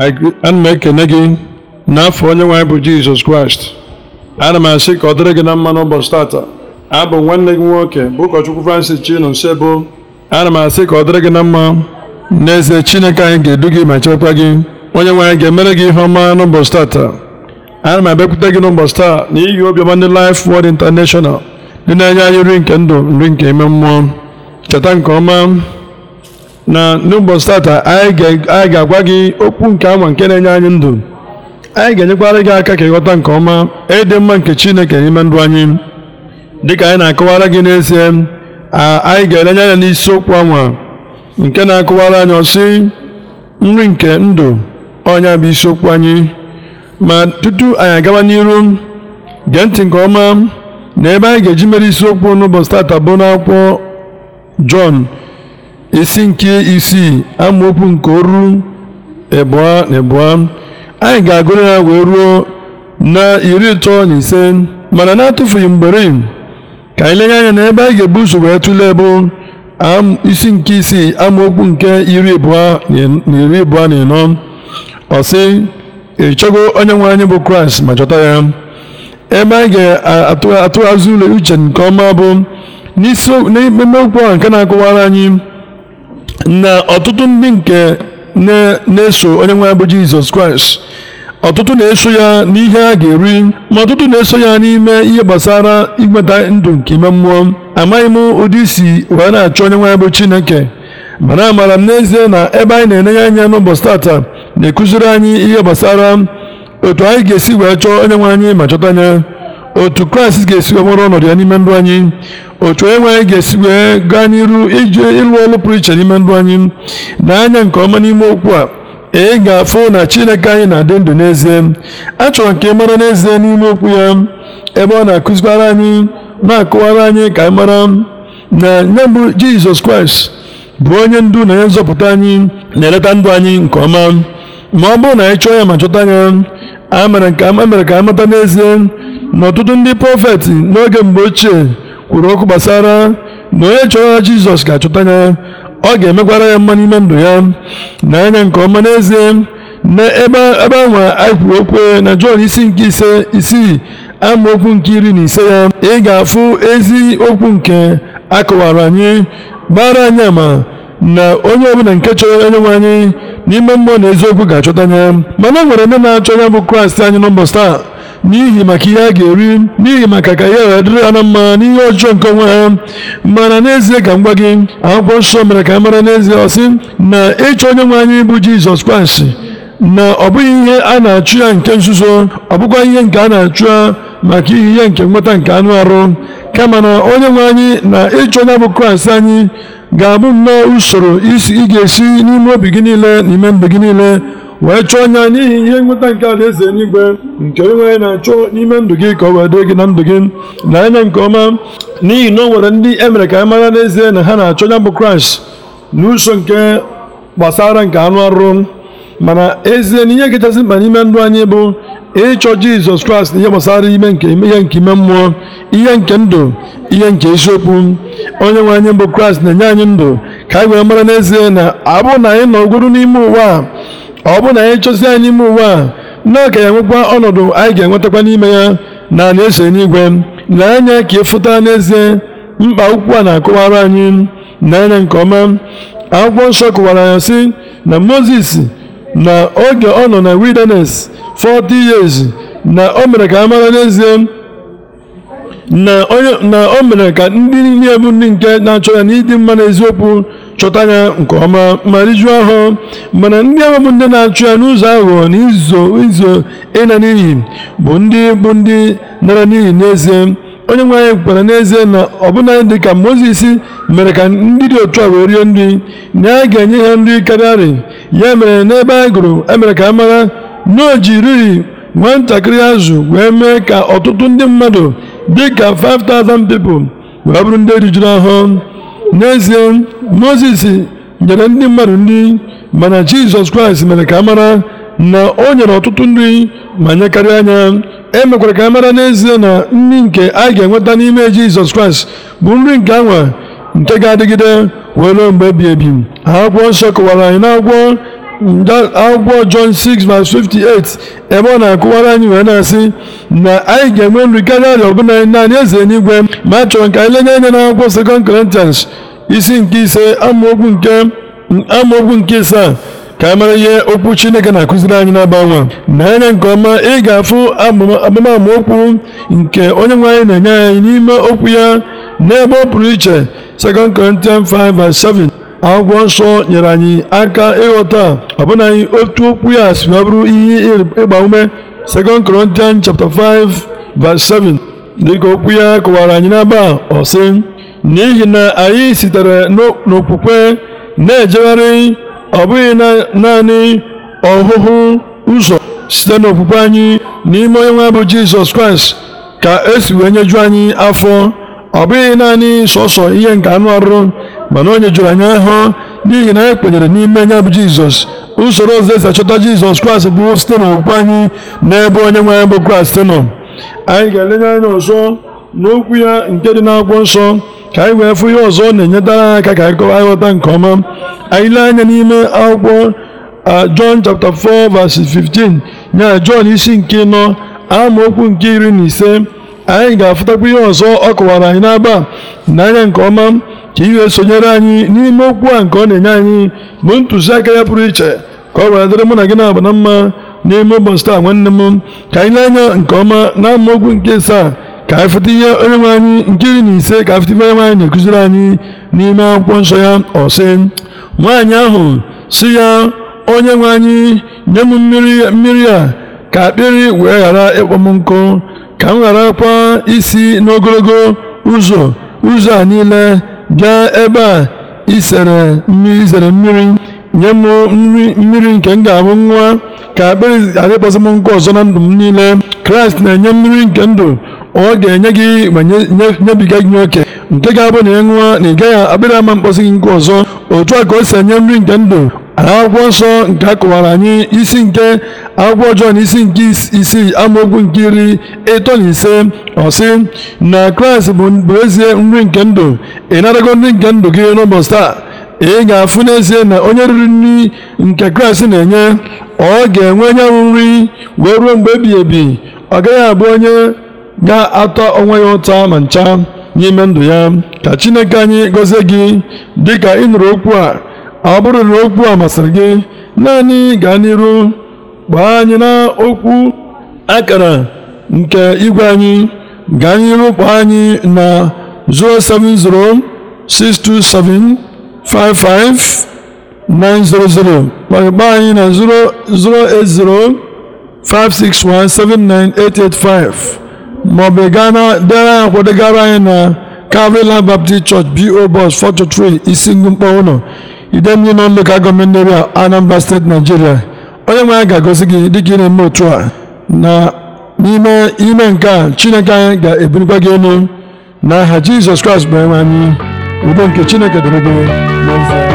ana m ekene gị n'afọ onye nwaanyị bụ jizọs kraịst ana m asị ka ọ dịrị gị na mma n'ụbọchị tata abụ nwanne gị nwoke bụ ụkọchukwu francis chinu nsebo ana m asị ka ọ dịrị gị na mma n'eze chineke anyị ga-edu gị ma chekwa gị onye nwaanyị ga-emere gị ihe ọma n'ụbọchị tata ana m abịakwute gị n'ụbọchị taa iyi obiọma ndị Life wod International dị na-enye anyị nri nke ndụ nri nke ime mmụọ cheta nke ọma na n'ụbọchị tata anyị ga-agwa gị okwu nke ama nke na-enye anyị ndụ anyị ga-enyekwara gị aka ka ịghọta nke ọma ịdị e mma nke Chineke n'ime ndụ anyị dịka anyị na-akọwara gị n'ezie anyị ga-elenye anya n'isiokwu anwa nke na-akọwara anyị ọsị nri nke ndụ ọnya bụ isiokwu anyị ma tutu anyị agawa n'iru gee ntị nke ọma na ebe anyị ga-eji mere isiokwu n'ụbọchị tata bụ n'akwụkwọ Jọn isi nke isii amaokwu nke oru abụọ na abụọ anyị ga-agụrụ ya wee ruo na iri ịtọ na ise mana na-atụfughị mgbere ka anyị lenye anya na ebe anyị ga-ebu ụzọ wee tụlee bụ isi nke isii amaokwu nke iri abụọ na iri abụọ na ịnọ ọsị sị ịchọgo onye nwe anyị bụ kraịst ma chọta ya ebe anyị ga-atụghazi ụlọ uche nke ọma bụ n'ime okwu a nke na akụwara anyị na ọtụtụ ndị nke na-eso onye nwe bụ Jizọs Kraịst ọtụtụ na-eso ya n'ihe a ga-eri ma ọtụtụ na-eso ya n'ime ihe gbasara inweta ndụ nke ime mmụọ amaghị m ụdị isi wee na-achọ onye nwe bụ Chineke mana amara m n'ezie na ebe anyị na-enenye anya n'ụbọchị tata na-ekụziri anyị ihe gbasara otu anyị ga-esi wee chọọ onye nwe anyị ma chọta anya. otu kraịst ga-esi nwere ọnọdụ ya n'ime ndụ anyị otu onye nwe anyị ga-esi wee gaa n'iru ije ịlụ ọlụ pụrụ iche n'ime ndụ anyị na-anya nke ọma n'ime okwu a ị ga-afụ na chineke anyị na-adị ndụ n'ezie achọrọ nke mara n'ezie n'ime okwu ya ebe ọ na-akụzikwara anyị na-akụwara anyị ka anyị mara na nye mbụ jizọs kraịst bụ onye ndu na onye nzọpụta anyị na-eleta ndụ anyị nke ọma ma ọ bụrụ na anyị chọọ ya ma chọta ya a mere ka a mata n'ezie na ọtụtụ ndị prọfeti n'oge mgbe ochie kwuru okwu gbasara na onye chọrọ Jizọs ga-achọta ya ọ ga-emekwara ya mma n'ime ndụ ya na anya nke ọma n'ezie na ebe anwa anyị kwuru okwu na Jọn isi nke ise isii amaokwu nke iri na ise ya ị ga-afụ ezi okwu nke akọwara anyị gbara anyị ama na onye ọbụla nke chọrọ onye nwe anyị n'ime mmụọ na eziokwu ga-achọta ya mana o nwere ndị na-achọ ya bụ Kraịst anyị nọmba sta. n'ihi maka ihe a ga-eri n'ihi maka ka ihe wee dịrị ha na mma n'ihe ọjọọ nke onwe ha mana n'ezie ka m gwa gị akwụkwọ nsọ mere ka a mara n'ezie ọsị na ịchọ onye nwe anyị bụ jizọs kraịst na ọ bụghị ihe a na-achụ ya nke nzuzo ọ bụkwa ihe nke a na-achụ ya maka ihe ihe nke nweta nke anụ arụ kama na onye nwe anyị na ịchọ onye bụ kraịst anyị ga-abụ nnọọ usoro ị ga-esi n'ime obi gị niile na ime mgbe gị niile wee chụọ anya n'ihi ihe nweta nke alaeze eluigwe nke onwe na-achọ n'ime ndụ gị ka ọ wee dị gị na ndụ gị na anya nke ọma n'ihi na o nwere ndị e mere ka anyị mara n'ezie na ha na-achọ ya bụ kraịst uso nke gbasara nke anụ arụ mana ezie na ihe kachasị mkpa n'ime ndụ anyị bụ ịchọ jizọs kraịst na ihe gbasara ime nke ihe nke ime mmụọ ihe nke ndụ ihe nke isiokwu onye nwe anyị bụ kraịst na-enye anyị ndụ ka anyị wee mara n'ezie na abụ na anyị nọ n'ime ụwa a ọ bụrụ na anyị chọsi anyị ime ụwa a na ka ya nwekwa ọnọdụ anyị ga-enwetakwa n'ime ya na anyị esere n'igwe na anya ka ịfụta e n'ezie mkpa akwụkwọ a na-akọwara anyị na anya nke ọma akwụkwọ nsọ kụwara ya sị na moses na oge ọ nọ na wilderness 40 years na o mere ka a mara n'ezie na o mere ka ndị niile bụ ndị nke na-achọ ya n'ịdị mma na eziokwu chọta ya nke ọma ma rijuo ahụ mana ndị ahụ bụ ndị na-achụ ya n'ụzọ aghụghọ na izo izo ịna n'iyi bụ ndị bụ ndị nara n'iyi n'ezie onye nwe anyị kwara n'ezie na ọbụna dị ka mozis mere ka ndị dị otu a wee rie nri na a ga-enye ha nri karịarị ya mere n'ebe a gụrụ emere ka a mara na o ji riri azụ wee mee ka ọtụtụ ndị mmadụ dịka 5000 people wee bụrụ ndị rijuru ahụ n'ezie moses nyere ndị mmadụ nri mana jizọs kraịst mere ka a mara na o nyere ọtụtụ nri ma nye karịa anya emekwara ka a mara n'ezie na nri nke a ga-enweta n'ime jizọs kraịst bụ nri nke anwa nke ga-adịgide wee ruo mgbe ebi ebi akwụkwọ nsọ kọwara anyị n'akwụkwọ akwụkwọ John 6:58 58 ebe ọ na-akụwara anyị wee na-asị na anyị ga-enwe nri karịa arịa ọbụla naanị eze n'igwe ma a chọrọ ka anyị lenye anya n'akwụkwọ 2 Corinthians isi nke ise amaokwu nke isaa ka a e mara ihe okwu Chineke na-akụziri anyị na nwa na anya nke ọma ị ga-afụ amama okwu nke onye nwe anyị na-enye anyị n'ime okwu ya n'ebe ọ pụrụ iche 2 Corinthians 5 verse 7 agwọ nsọ nyere anyị aka ịghọta anyị otu okwu ya si ma bụrụ ihe ịgba ume 2 Corinthians chapter 5 verse 7 dịka okwu ya kọwara anyị n'aba ọsị n'ihi na anyị sitere n'okwukwe na-ejegharị ọ bụghị naanị ọhụhụ ụzọ site n'okwukwe anyị n'ime onye nwe bụ Jizọs Kraịst ka esi wee nyeju anyị afọ ọ bụghị naanị sọsọ ihe nke anụ arụ mana onye jụrụ anya ahụ n'ihi na anyị e kwenyere n'ime ya bụ jizọs usoro ọzọ esi achọta jizọs kraịst bụ site n'okwukwe anyị n'ebe onye nwe bụ kraịst nọ anyị ga-elenye anya ọzọ n'okwu ya nke dị n'akwụkwọ nsọ ka anyị wee fụ ihe ọzọ na-enyetara anyị aka ka anyị kọwa aghọta nke ọma anyị lee anya n'ime akwụkwọ John chapter 4 verse 15 ya John isi nke nọ amaokwu nke iri na ise anyị ga-afụtakwa ihe ọzọ ọ kọwara anyị n'agba n'anya nke ọma ka ihe sonyere anyị n'ime okwu a nke ọ na-enye anyị bụ ntụziaka ya pụrụ iche ka ọ were dịrị mụ na gị na-aba na mma n'ime ụbọchị taa nwanne m ka anyị na-anya nke ọma na amaokwu nke asaa ka anyị fụta ihe onye nwe anyị nke iri na ise ka anyị fụta ihe onye nwe na-ekụziri anyị n'ime akwụkwọ nsọ ya ọsị nwaanyị ahụ si ya onye nwe anyị nye m mmiri a ka akpịrị wee ghara ịkpọ m nkụ ka m gharakwa isi n'ogologo ụzọ ụzọ a niile gaa ebe a izere mmiri nye m nri mmiri nke m ga-abụ nwa ka akpịrị adịkpọsị m nkụ ọzọ na ndụ m niile kraịst na-enye mmiri nke ndụ ọ ga-enye gị ma nyebiga gị oke nke ga-abụ na ị ṅụọ na ị gaghị akpịrị ama mkpọsị gị nkụ ọzọ otu a ka o si enye nri nke ndụ akwụkwọ nsọ nke a kụwara anyị isi nke akwụkwọ ọjọọ na isi nke isii amaokwu nke iri ịtọ na ise ọsị na kraịst bụ ezie nri nke ndụ ị narago nri nke ndụ gị n'ụbọchị taa ị ga-afụ n'ezie na onye riri nri nke kraịst na-enye ọ ga-enwe nyanwụ nri wee ruo mgbe ebighị ebi ọ gaghị abụ onye ga-atọ onwe ya ụta ma ncha n'ime ndụ ya ka chineke anyị gọzie gị dịka ị nụrụ okwu a ọ bụrụ na okwu a masịrị gị naanị gaa n'iru gbaa anyị na okwu akara nke igwe anyị gaa n'iru kwa anyị na 07062755900 gbaa anyị na 08056179885 maọbụ gaa na dere akwadogara anyị na Calvary Baptist Church BO isi 423 Isingumkpa ụlọ Idemili Nọn Lokal Gọọmenti Area Anambra Steeti Nigeria onye nwe ya ga agọzi gị dị ka ị na-eme otu a na n'ime ime nke a Chineke anyị ga-ebulikwa gị elu aha Jizọs Kraịst bụ enwe anyị udo nke Chineke dịrị gị